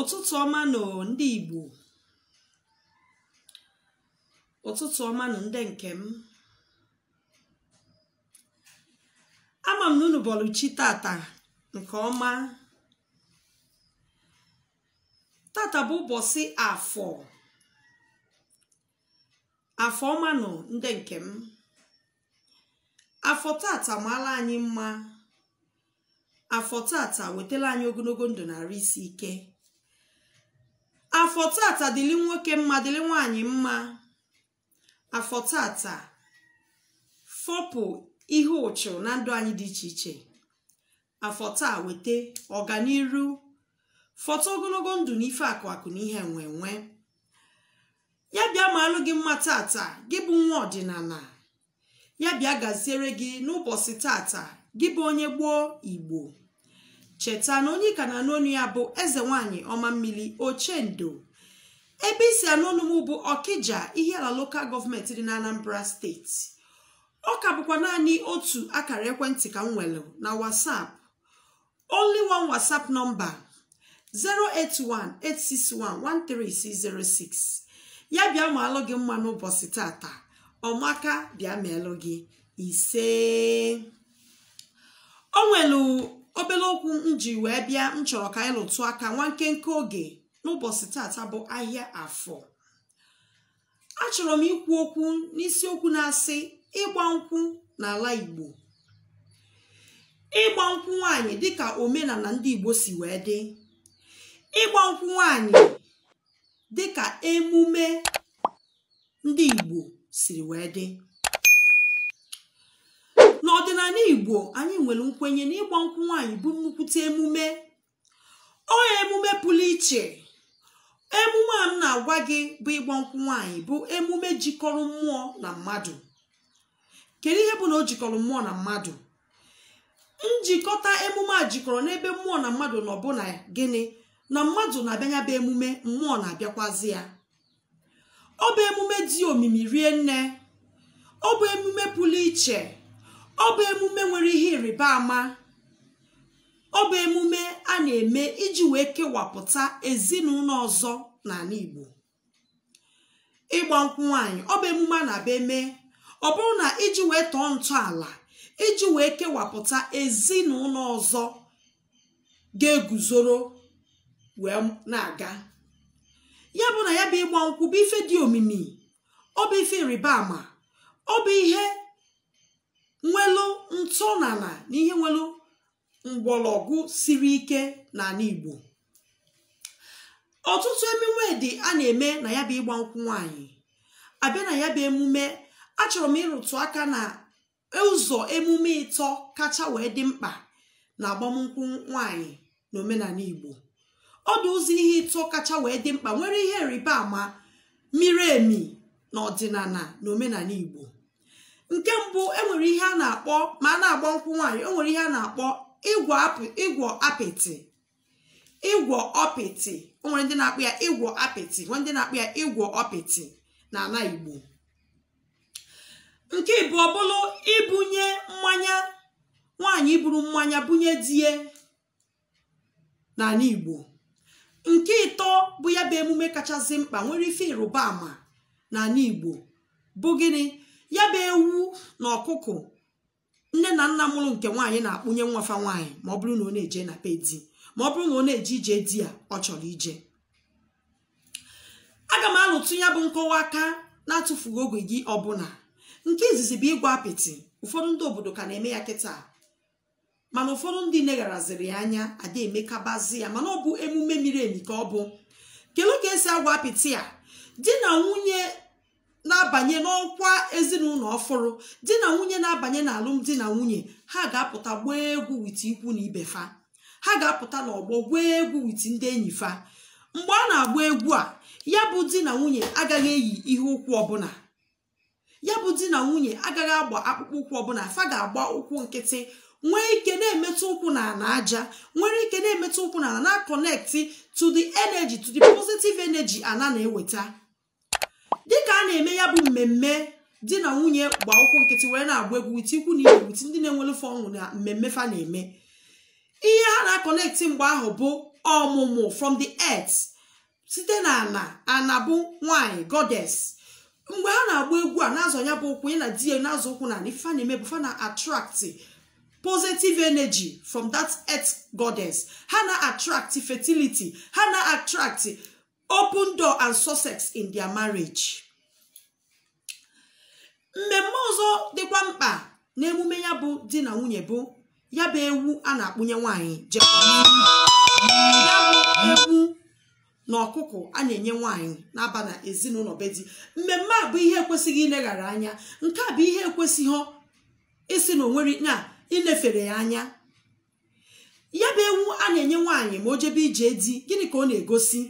ụtụtụ ọma nọ ndị Igbo ụtụtụ ọma nọ ndị nke m ama m na unu bọlụchi tata nke ọma tata bụ ụbọchị afọ afọ ọma nọ ndị nke m afọ tata maala anyị mma afọ tata wetala anyị ogologo ndụ narị isi ike afọ tata dịlị nwoke mma dịlị nwaanyị mma afọ tata fọpụ ihe ụchụ na ndụ anyị dị iche iche afọ taa weta ọganiru fọta ogologo ndụ na ife akụ akụ na ihe nwe nwe ya bịa ma alụ gị mma tata gị bụ nwa ọdịnala ya bịa gaziere gị n'ụbọchị tata gị bụ onye gboo igbo cheta na onye ka na-anụ onu ya bụ eze nwanyị ọma mmiri ochendo ebe isi anụ m bụ ọkịja ihe ala lokal gọọmenti dị na anambra steeti ọ ka bụkwa naanị otu akara ekwentị ka m nwere na whatsapp only one whatsapp nọmba 08186113606 ya bịa ma alụ gị mma n'ụbọchị tata ọmaka bịa gị ise o obere okwu m ji wee bịa m chọrọ ka anyị lụtụ aka nwa nkenke oge n'ụbọchị tata bụ ahịa afọ achọrọ m ikwu okwu n'isi okwu na-asị ịgba nkwụ n'ala igbo ịgba nkwụ nwaanyị dịka omenala ndị igbo si wee dị ịgba nkwụ nwaanyị dịka emume ndị igbo siri wee dị n'ala igbo anyị nwere nkwenye na ịgba nkwụ nwaanyị bụ nnukwute emume ọ emume pụrụ iche emume a m na-agwa gị bụ ịgba nkwụ nwaanyị bụ emume jikọrọ mmụọ na mmadụ kedu ihe bụ na o jikọrọ mmụọ na mmadụ njikọta emume a jikọrọ n'ebe mmụọ na mmadụ nọ na gịnị na mmadụ na-abịanya bụ emume mmụọ na-abịakwazi ya ọ bụ emume dị omimi rie nne ọ bụ emume pụrụ iche ọ emume nwere ihe ịrịba ama ọ emume a na-eme iji wee kewapụta ezinụlọ ọzọ n'ala Igbo ịgba nkwụ nwaanyị ọ bụ emume a na-abịa eme ọ bụrụ na iji wee tọọ ntọala iji wee kewapụta ezinụlọ ọzọ ga-eguzoro wee na-aga ya bụ na ya bụ ịgba nkwụ bụ ife dị omimi ọ ife ịrịba ama ọ ihe nwelu n'ala na ihe nwelu mgbọrọgwụ siri ike n'ala igbo ọtụtụ emume dị a na-eme na ya bụ ịgba nkwụ nwaanyị abịa na ya bụ emume achọrọ m ịrụtụ aka na ụzọ emume ịtọ kacha wee dị mkpa na agbamnkwụ nwaanyị na omenala igbo ọ ụzọ ihe ịtọ kacha wee dị mkpa nwere ihe rịba ama miri emi na ọdịnala na omenala igbo nke mbụ enwere ihe a na-akpọ ma a na-agba nkwụ nwaanyị enwere ihe a na-akpọ ịgwọ apịtị ịgwọ ọpịtị nwere ndị na-akpụ ya ịgwọ apịtị nwere ndị na-akpụ ya ịgwọ ọpịtị n'ala igbo nke bụ ọbụlụ ibunye mmanya nwaanyị buru mmanya bunye die n'ala igbo nke ịtọ bụ ya bụ emume kachasị mkpa nwere ife ịrụba ama n'ala igbo bụ gịnị ya bụ ewu na ọkụkọ nne na nna mụrụ nke nwaanyị na-akpụnye nwafa nwaanyị ma ọ bụrụ na ọ na-eje na be di ma ọ bụrụ na ọ na-eje ije di ya ọ chọrọ ije aga m alụtụ ya bụ nkọwa aka na atụfugo oge gị ọbụla nke izizi bụ ịgwa apịtị ụfọdụ ndị obodo ka na-eme ya kịta mana ụfọdụ ndị negharaziri ya anya ada emekabazi ya mana ọ bụ emume miri emi ka ọ bụ kelu ka esi agwa apịtị a di na nwunye na-abanye n'ọkwa ezinụlọ ọfụrụ di na nwunye na-abanye alụmdi na nwunye ha ga-apụta gbaa egwu witi ikwu na ibe fa ha ga-apụta n'ọgbọ gwaa egwu wit ndị enyi fa mgbe a na-agba egwu a ya bụ di na nwunye agaghị eyi ihe ụkwụ ọbụla ya bụ di na nwunye agaghị agba akpụkpọ ụkwụ ọbụla fa ga-agba ụkwụ nkịtị nwee ike na-emetụ ụkwụ na ala aja nwere ike na-emetụ ụkwụ na ala na-akọnekti to the energy to the positive energy ana na-eweta dịka a na-eme ya bụ mmemme di na nwunye gba ụkwụ nkịtị wee na-agba egwu wit ikwu na igwu ndị na-enwere fe ọṅụ na mmemme fa na-eme ihe a na-akọnekti mgbe ahụ bụ ọmụmụ from the earth site na ana ana bụ nwanyị godes mgbe ha na-agba egwu a na azụ ya bụ ụkwụ na di na ụkwụ na ife na-eme bụ fa na attract positive energy from that earth goddess ha na attract fertility ha na attract open door and success in their marriage mmemme ọzọ dịkwa mkpa na emume ya bụ di na nwunye bụ ya bụ ewu a na-akpụnye nwanyị ya bụ ewu na ọkụkọ a na-enye na-aba na ezinụlọ be di mmemme a bụ ihe ekwesịghị ileghara anya nke a bụ ihe ekwesịghị isi na onwere na ilefere ya anya ya bụ ewu a na-enye nwaanyị ma o jebe ije di gịnị ka ọ na-egosi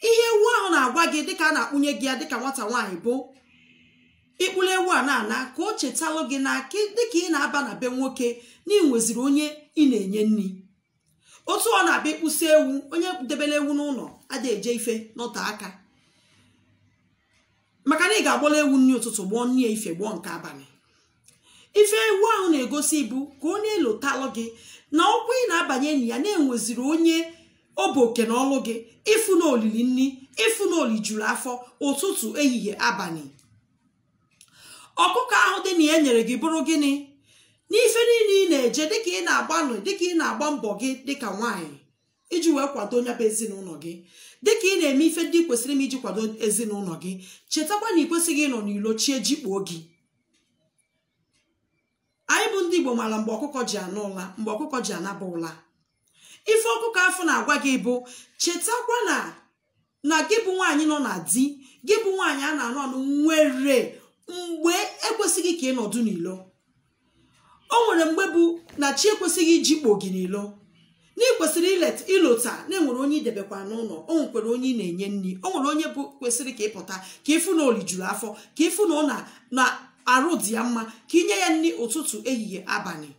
ihe ewu ahụ na-agwa gị dịka a na-akpụnye gị ya dịka nwata nwaanyị bụ ịkpụrụ ewu a na-ana ka o chetalụ gị na dịka ị na-aba na be nwoke na ị nweziri onye ị na-enye nri otu ọ na-abịa ịkpụsị ewu onye debere ewu n'ụlọ ada eje ife n'ọta aka maka na ị ga-agbọla ewu nri ụtụtụ gbọọ nri ya ife gbọọ nke abalị ife ewu ahụ na-egosi bụ ka ọ na-elotalụ gị na ọkwa ị na-abanye enyi ya na-enweziri onye ọ bụ oke na ọlụ gị ịfụ na olili nri ịfụ na oli juru afọ ụtụtụ ehihie abalị ọkụkọ ahụ dị na ya nyere gị bụrụ gịnị n'ife niile ị na-eje dịka ị na-agbanụ dịka ị na-agba mbọ gị dịka nwaanyị iji wee kwado onye bụ ezinụlọ gị dịka ị na-eme ife ndị kwesịrị m iji kwado ezinụlọ gị chetakwa na ị kwesịghị ịnọ n'ilo chie jikpuo gị anyị bụ ndị Igbo maara mgbe ọkụkọ ji anụ ụla mgbe ọkụkọ ji anaba ụla ife ọkụkọ afọ na-agwa gị bụ chetakwa na na gị bụ nwaanyị nọ na di gị bụ nwaanyị a na anọ anụ nwere mgbe ekwesịghị ka ị nọdụ n'ilo o nwere mgbe bụ na chi ekwesịghị iji kpo gị n'ilo na ị kwesịrị ịlọta na enwere onye idebekwa n'ụlọ o nwekwere onye ị na-enye nri o nwere onye bụ kwesịrị ka ịpụta ka ịfụ na olijuru afọ ka ịfụ na ọ na arụ dị ya mma ka inye ya nri ụtụtụ ehihie abalị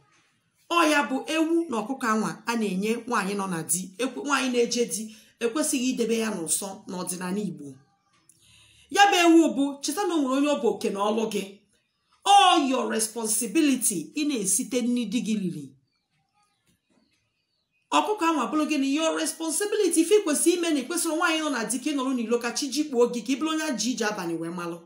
ya bụ ewu na ọkụkọ anwa a na-enye nwaanyị nọ na di nwaanyị na-eje di ekwesịghị idebe ya n'ụsọ n'ọdịnala Igbo ya bụ ewu bụ cheta na onwere nwere onye ọ bụ oke na ọlụ gị all your responsibility ị na-esite n'idi gị riri ọkụkọ anwa bụrụ gị na your responsibility ife ikwesị ime na ikwesịrị nwaanyị nọ na di ka ị n'ilo ka chi jikpuo gị ka ị bụrụ onye ji ije abalị wee malụ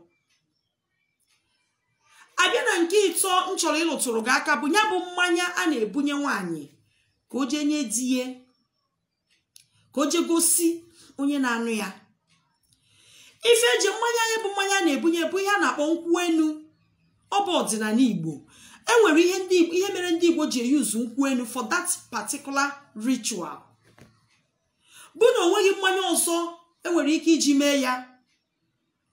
abịa na nke ịtọ m chọrọ ịlụtụrụ gị aka bụ ya bụ mmanya a na-ebunye nwaanyị ka o jee nye di ka o jee gosi onye na-anụ ya ife eji mmanya anya bụ mmanya na-ebunye bụ ihe a na-akpọ nkwu enu ọ bụ ọdịnala igbo enwere ihe mere ndị igbo ji eyuzu nkwu enu for that particular ritual bụ na onweghị mmanya ọzọ enwere ike iji mee ya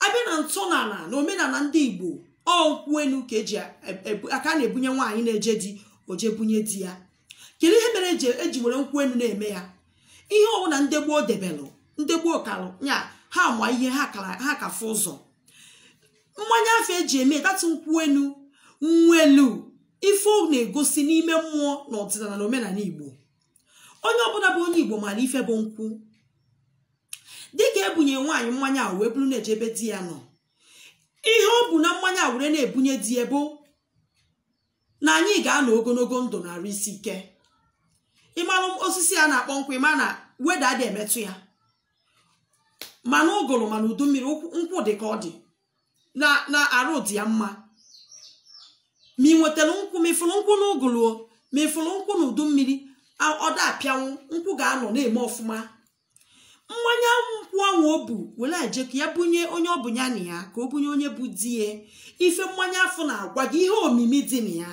abịa na n'ala na omenala ndị igbo ọ nkwụ elu ka eji e, e, aka na-ebunye nwaanyị na-eje di oje bunye di ya kedu ihe mere eji were nkwụ elu na-eme ya ihe ọbụla ndị gboo debelụ ndị gboo kalụ ya ha ma ihe ha kafe ụzọ mmanya afọ eji eme datụ nkwụ elu nwa elu ife na-egosi n'ime mmụọ na ọdịnala na omenala igbo onye ọbụla bụ onye igbo maara ife bụ nkwụ dịka ebunye nwaanyị mmanya wee bụrụ na-ejebe di ya nọ ihe ọ bụ na mmanya were na-ebunye di ebo na anyị ga-anọ ogologo ndụ narị isi ike ịmalụ osisi a na-akpọ nkwụ ịma na weda dị emetụ ya mana ụgụrụ mana udu mmiri nkwụ dị ka ọ dị na arụ dị ya mma ma ị nwetara nkwụ mefụrụ nkwụ na ụgụrụ mefụrụ nkwụ na udu mmiri ọda apịanwụ nkwụ ga-anọ na-eme ọfụma mmanya akwụkwọ ọnwa o bu were ka ya bunye onye ọ bụ ya na ya ka o bunye onye bụ di ya ife mmanya afọ na-agwa gị ihe omimi dị na ya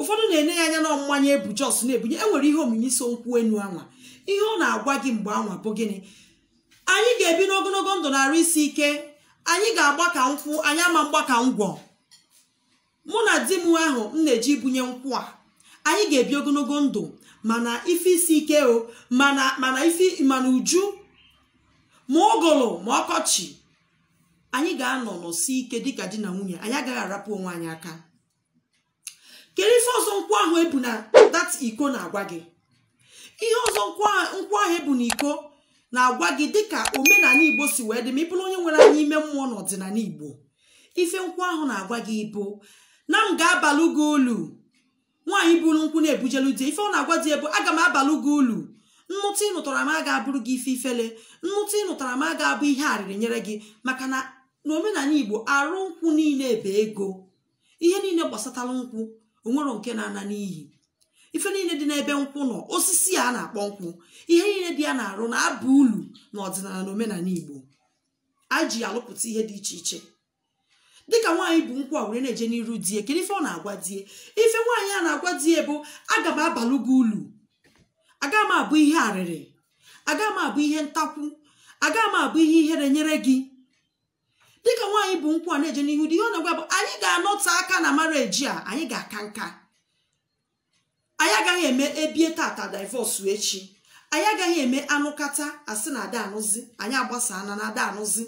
ụfọdụ na-enye ya anya na mmanya ebu jos na-ebunye e nwere ihe omimi so nkwụ enu anwa ihe ọ na-agwa gị mgbe anwa bụ gịnị anyị ga-ebi n'ogologo ndụ na-arụ isi ike anyị ga-agba ka nkwụ anyị ama mgba ka ngwọ mụ na di m ahụ m na-eji bunye nkwụ a anyị ga-ebi ogologo ndụ mana ife isi ike o mana mana ife mana uju ma ụgụrụ ma ọkọchị anyị ga-anọ n'ọsi ike dịka di na nwunye anyị agaghị arapụ onwe anyị aka kedu ife ọzọ nkwụ ahụ ebu na dat iko na-agwa gị ihe ọzọ nkwụ ahụ ebu na iko na-agwa gị dịka omenala igbo si wee dị ma ị bụrụ onye nwere anya ime mmụọ n'ọdịnala igbo ife nkwụ ahụ na-agwa gị bụ na m ga-abalụ gị ulu nwaanyị buru nkwụ na-ebujelu di ife ọ na-agwa di ebu aga m abalụ gị ulu nnụtụ ị nụtara m aga abụrụ gị ife ifele nnụtụ ị nụtara m aga abụ ihe arịrị nyere gị maka na n'omenala igbo arụ nkwụ niile bụ ego ihe niile gbasatara nkwụ onwero nke na-ana n'ihi ife niile dị n'ebe nkwụ nọ osisi a na-akpọ nkwụ ihe niile dị ya na-arụ na-aba ulu na ọdịnala na omenala igbo a ji alụpụta ihe dị iche iche dịka nwaanyị bụ nkwụ a were na-eje n'iru die kedu ife ọ na-agwa die ife nwaanyị a na-agwa die bụ aga m abalụ gị ulu aga m abụ ihe arịrị aga m abụ ihe ntakwu aga m abụ ihe ihere nyere gị dịka nwaanyị bụ nkwụ a na-eje n'ihu dị ihe ọ na-agwa bụ anyị ga-anọta aka na mareji a anyị ga-aka nka anyị agaghị eme ebie tata divọsụ echi anyị agaghị eme anụkata asị na ada anụzi anyị agbasana na ada anụzi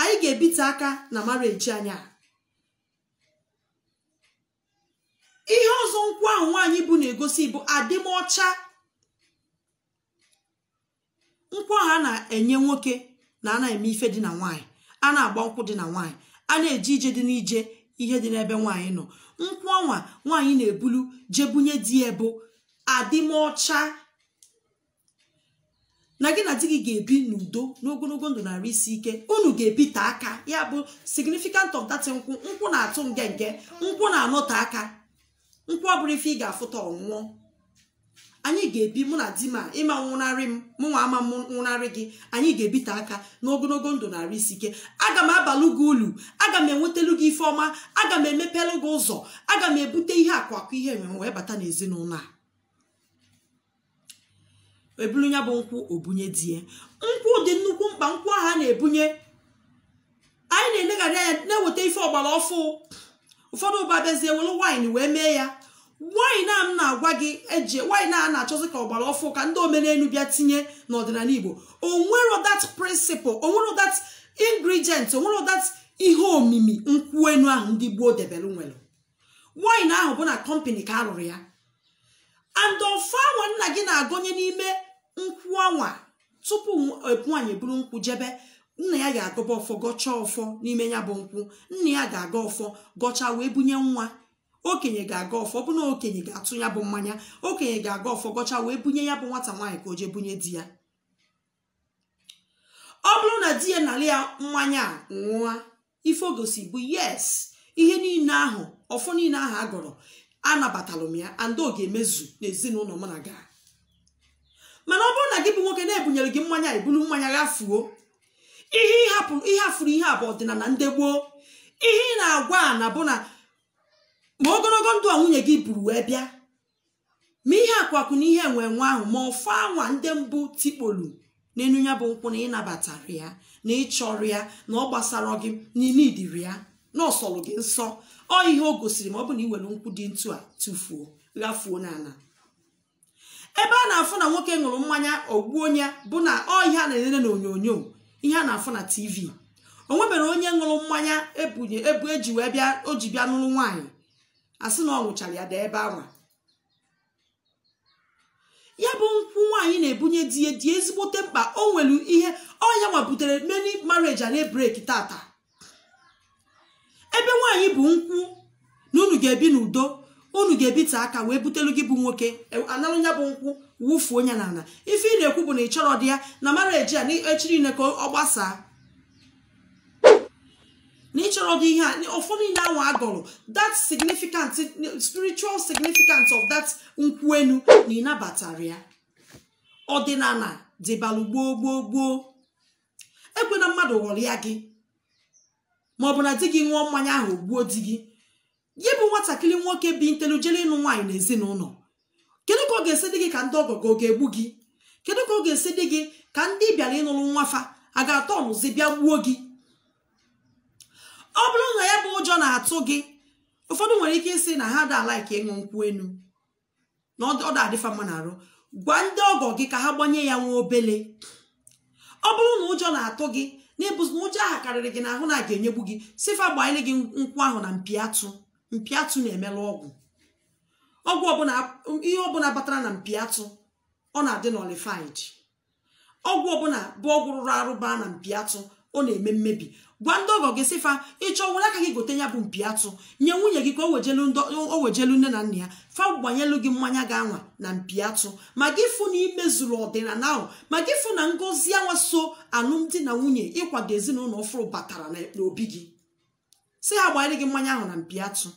anyị ga-ebite aka na mareji anyị ihe ọzọ nkwụ ahụ nwaanyị bụ na-egosi bụ adịmọcha nkwụ ahụ a na-enye nwoke na a na-eme ife dị na nwaanyị a na-agba nkwụ dị na nwaanyị a na-eje ije dị n'ije ihe dị n'ebe nwaanyị nọ nkwụ ọnwa nwaanyị na-ebulu jebunye di ya bụ adịmọcha na gị na di gị ga-ebi n'udo n'ogologo ndụ narị isi ike unu ga-ebite ebi aka ya bụ significant of nkwụ nkwụ na-atụ nge nke nkwụ na-anọte aka nkwụ bụrụ ife ị ga-afụta ọnwụọ anyị ga-ebi mụ na di ma ịma nwụnarị m mụ nwa ama m nwụnarị gị anyị ga-ebite aka n'ogologo ndụ narị isi ike aga m abalụ gị ulu aga m enwetalụ gị ife ọma aga m emepelu gị ụzọ aga m ebute ihe akụ akụ ihe enwe wee bata n'ezinụlọ a ebulu ya bụ nkwụ obunye die nkwụ dị nnukwu mkpa nkwụ ahụ a na-ebunye anyị na-eleghara anya na-eweta ife ọgbara ọfụ ụfọdụ ụba bịazie welu waịn wee mee ya waịn a m na-agwa gị eje waịn a na-achọzi ka ọgbara ọfụ ka ndị omenelu bịa tinye n'ọdịnala igbo onwere that principle onwere that ingredient onwere that ihe omimi nkwụ enu ahụ ndị gboo debelu nwere waịn ahụ bụ na kọmpani ka a ya and ofe anwa nna gị na-agọnye n'ime nkwụ anwa tupu nwaanyị buru nkwụ jebe nna ya ga-agọba ọfọ gọchaa ọfọ n'ime ya bụ nkwụ nna ya ga-aga ọfọ gọchaa wee bunye nwa okenye ga-aga ọfọ ọbụna okenye ga-atụ ya bụ mmanya okenye ga-aga ọfọ gọchaa wee bunye ya bụ nwata nwaanyị ka o jee bunye di ya ọ bụrụ na di ya nara ya mmanya nwụa ife ogosi bụ yes ihe niile ahụ ọfọ niile ahụ a gọrọ anabatalụ m ya andị ọ ga-emezu n'ezinụlọ m na gaa mana ọ bụrụ na gị bụ nwoke na-ebunyere gị mmanya ebulu mmanya gafuo ihe ịhapụrụ ihe afụrụ ihe abụ ọdịnala ndị gboo ihe ị na-agwa a na bụ na ma ogologo ndụ a nwunye gị buru wee bịa ma ihe akwakwu na ihe enwe ahụ ma ọfụ anwa ndị mbụ tikpolu n'elu ya bụ nkwụ na ịnabatara ya na ịchọrọ ya na ọ gbasara gị n'ime ya na ọsọrọ gị nsọ ọ ihe o gosiri ma ọ bụ na iwere nkwụ dị ntu a tụfuo ghafuo n'ala ebe a na-afụ na nwoke ṅụrụ mmanya ogbuo onye bụ na ọ ihe a na-elele ihe a na-afụ na tv o nwebere onye ṅụrụ mmanya ebunye ebu eji wee bịa o ji bịa n'ụlọ nwaanyị asị na ọ ṅụchara ya dị ebe anwa ya bụ nkwụ nwaanyị na-ebunye di ya dị ezigbote mkpa o nwere ihe ọnya nwa meni many marriage a na-ebreki tata ebe nwaanyị bụ nkwụ na unu ga-ebi n'udo unu ga-ebite aka wee butelu gị bụ nwoke e, analụ ya bụ nkwụ wụfuo onye n'ala ife ị na-ekwu bụ na ị di ya na mara eji a echiri niile ka ọ gbasaa na ịchọrọ dị ihe a ụfọdụ niile ahụ agọrọ that significant spiritual significance of that nkwụ enu na ịnabatara ya ọdịnala dịbalụ gboo gboo gboo ekwena mmadụ ghọrọ ya gị maọbụ na di gị ṅụọ mmanya ahụ gbuo di gị ya bụ nwatakịrị nwoke bi ntelu ịnụ nwaanyị na ezinụlọ kedu ka ọ ga-esi dị gị ka ndị ọgọ ọ ga-egbu gị kedu ka ọ ga-esi dị gị ka ndị bịara ịnụrụ nwafa a ga-atọ ọnụzi bịa gbuo gị ọ bụrụ na ya bụ ụjọ na-atụ gị ụfọdụ nwere ike ịsị na ha daa laiki ịṅụ nkwụ enu na ọ da-adịfa mma na-arụ gwa ndị ọgọ gị ka ha gbanye ya nwa obele ọ bụrụ na ụjọ na-atụ gị na ịbụzi na ụjọ ahụ karịrị gị ahụ na a ga-enyegbu gị sifa gbanyere gị nkwụ ahụ na mpi atụ mpiatụ na-emelụ ọgwụ ọgwụ ọbụla ihe ọbụla batara na mpiatu ọ na-adị n'olifid ọgwụ ọbụla bụ ọgwụ rụrụ arụba na mpiatụ ọ na-eme mmebi gwa ndị ọgọ gị sịfa ịchọ were aka gị gote ya bụ mpiatụ nye nwunye gị ka o wejelu nne na nna ya fa gbanyelu gị mmanya ga-anwa na mpiatụ ma gị fụ na imezuru ọdịnala ahụ ma gị fụ na ngozi anwa so alụmdi na nwunye ịkwado ezinụlọ ọfụrụ batara n'obi gị si ya gbanyere gị mmanya ahụ na mpi atụ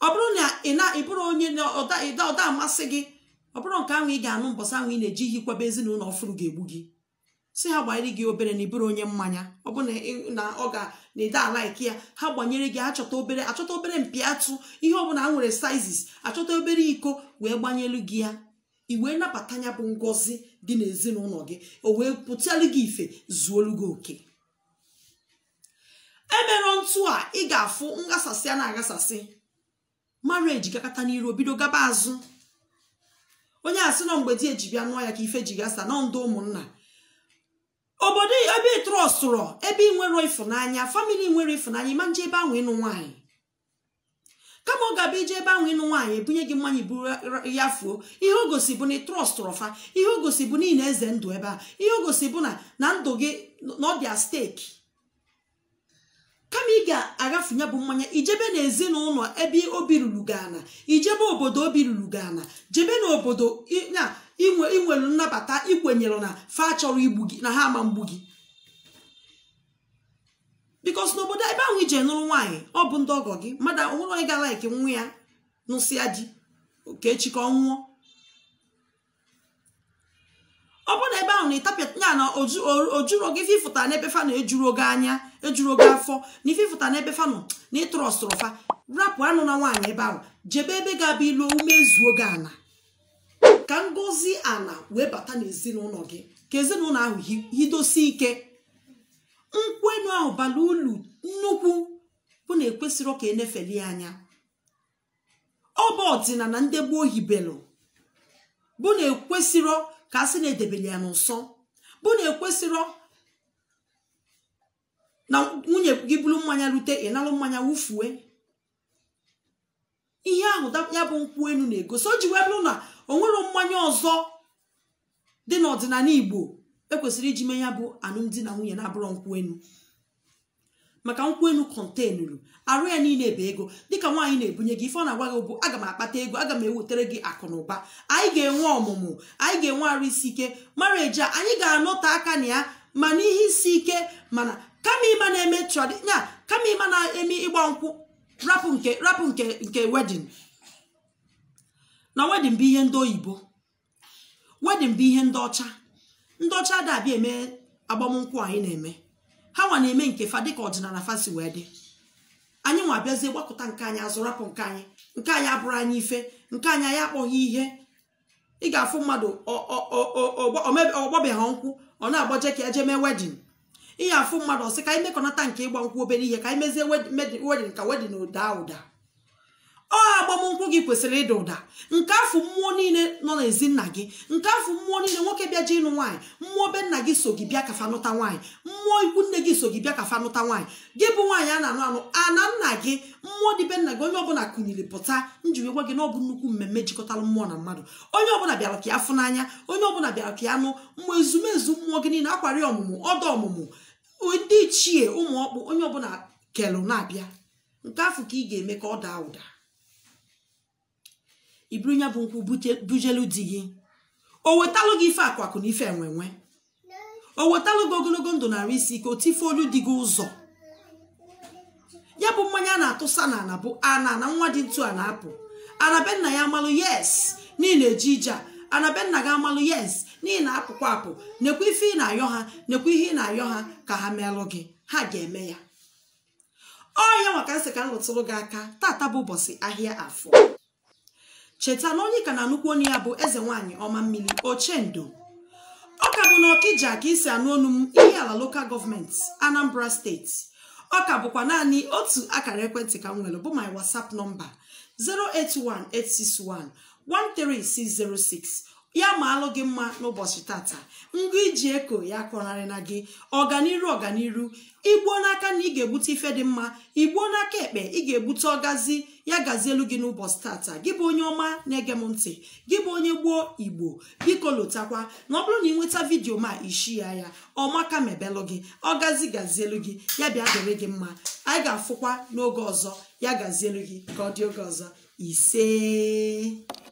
ọ bụrụ na ị na ịbụrụ onye ịda amasị gị ọ bụrụ nke ahụ ị ga-anụ mbọsị ahụ ị na-eji ihikwebe ezinụlọ ọfụrụ ga-egbu gị si ha gbanyere gị obere na ịbụrụ onye mmanya ọ bụ na ọ ga na ịda alaiki ya ha gbanyere gị achọta obere achọta obere mpi atụ ihe ọbụla ha nwere sizes achọta obere iko wee gbanyelu gị ya i wee nabata ya bụ ngozi dị n'ezinụlọ gị o wee pụtalụ gị ife zuolu gị oke emerọ ntụ a ị ga-afụ ngasasị a na agasasị marriage gakata n'iru bido gaba azụ onye asị nọ mgbe di eji bịa nụọ ya ka ife ji gasa na ndụ ụmụnna obodo ebe ị ebe ị nwere ịfụnanya famili nwere ịfụnanya ịma nje ebe ahụ ịnụ nwaanyị kama ọ ga-abịa ije ebe ahụ ịnụ nwaanyị ebunye gị mmanya buru ya fuo ihe o gosi bụ na ị trọstụrụ fa ihe o gosi bụ na ị na-eze ndụ ebe a ihe o gosi bụ na na ndụ gị na ọ steeki kama ị ga-agafunye bụ mmanya ijebe na ezinụlọ ebe obi ruru gana ijebe obodo obi ruru gana jebe na obodo ya inwelu nnabata ikwenyere na fa chọrọ igbu gị na ha ama mgbu gị bikos n'obodo ebe ahụ ije nụrụ nwaanyị ọ bụ ndị ọgọ gị mmadụ onwere onye ga-alaiki nwa ya nụsịa di ka nwụọ ịtapịa ya na ojuro gị fifụta n'ebe fa na ejuru oge anya ejuru oge afọ na ifefụta n'ebe fa nọ na ọsụrụ fa rapụ anụ na nwaanyị ebe ahụ jebe ebe ga-abụ ilu umezuo gị ala ka ngozi ala wee bata n'ezinụlọ gị ka ezinụlọ ahụ hidosie ike nkwenu ahụ bara ulu nnukwu bụ na ekwesịrị ka enefeli anya ọ bụ ọdịnala ndị gboo hibelu bụ na ekwesịrị ka a sị na edebele ya n'ụsọ bụ na ekwesịrọ na nwunye gị bụrụ mmanya rute ịnalụ mmanya wụfuwe ihe ahụ ya bụ nkwụ enu na-egosi o ji wee na o mmanya ọzọ dị n'ọdịnala Igbo ekwesịrị iji mee ya bụ alụmdi na nwunye na-abụrụ nkwụ enu maka nkwụ elu kọntenuru arụ ya niile bụ ego dịka nwaanyị na-ebunye gị ife ọ na-agwa gị bụ aga m akpata ego aga m ewetara gị akụnụba ụba anyị ga-enwe ọmụmụ anyị ga-enwe arụ isi ike mara eje anyị ga-anọte aka na ya ma n'ihe isi ike mana kama ịma na-eme tradinya kama ịma na-eme ịgba nkwụ rapụ nke rapụ nke nke wedin na wedin bụ ihe ndị oyibo wedin bụ ihe ndị ọcha ndị ọcha adabịa eme agbamnkwụ anyị na-eme ha nwa na-eme nke fa dịka ọdịnala fasi wee dị anyị nwa abịazie gbakọta nke anyị azụrapụ nke anyị nke anyị abụrụ anyị ife nke anyị anyị akpọghị ihe ị ga-afụ mmadụ ọgbọbịaghị nkwụ ọ na-agbaje ka eje mee wedin ị ga-afụ mmadụ ọsị ka anyị mekọnata nke ịgba nkwụ obere ihe ka anyị mezie wedin ka wedin ụda ụda ọ agbamnkwụ gị kwesịrị ịda ụda nke afọ mmụọ niile nọ n'ezi nna gị nke afọ mmụọ niile nwoke bịa ji ịnụ nwaanyị mmụọ be nna gị so gị bịa kafa nụta nwaanyị mmụọ ikwu nne gị so gị bịa kafa nụta nwaanyị gị bụ nwaanyị a na-anụ anụ ana nna gị mmụọ dị be nna gị onye ọbụla kụnyiri pụta njiri gwa gị na nnukwu mmemme jikọtara mmụọ na mmadụ onye ọbụla bịara ka ya fụ n'anya onye ọbụla bịara ka ya nụ mmụọ ezumezu mmụọ gị niile akwari ọmụmụ ọdọ ọmụmụ ndị ichie ụmụ ọkpụ onye ọbụla kelụ na-abịa nke afọ ka ị ga-eme ka ọ daa ụda iburu ya bụ nkwụ bujelu di gị o wetalụ gị ife akwakụ na ife enwenwe o wetalụ gị ogologo ndụ narị isi ka o tife olu dị gị ụzọ ya bụ mmanya a na-atụsa na ana bụ ana na nwa dị ntu a na-apụ anabenna ya amalụ yes n'ihi na-eji ije a anabenna gị amalụ yes n'ihi na apụkwa apụ nekwa ife ị na-ayọ ha nekwa ihe ị na-ayọ ha ka ha meelu gị ha ga-eme ya ọ ya maka nsị ka m rụtụrụ gị aka tata bụ ụbọchị ahịa afọ cheta na onye ka na-anụkwu onye ya bụ eze nwaanyị ọma mmiri ochendo ọka ọka bụ na ọkija ka isi anụ ọnụ m ihe ala lokal gọọmenti anambra steeti ọka bụkwa naanị otu akara ekwentị ka m nwere bụ my whatsapp nọmba 081861 13606 ya ma alụ gị mma n'ụbọchị tata ngụ iji eko ya kọnarị na gị ọganiru ọganiru igbuo n'aka na ị ga-ebute ife dị mma igbuo n'aka ekpe ị ga-ebute ọgazi ya gazie elu gị n'ụbọchị tata gị bụ onye ọma na-ege m ntị gị bụ onye gbuo igbo biko lotakwa na ọ bụrụ na ị nweta vidiyo ma ishi ya ya ọmaka mebelụ gị ọgazi gazielu gị ya bịa dịrị gị mma anyị ga-afụkwa n'oge ọzọ ya gazielu gị ka ọ dị oge ọzọ ise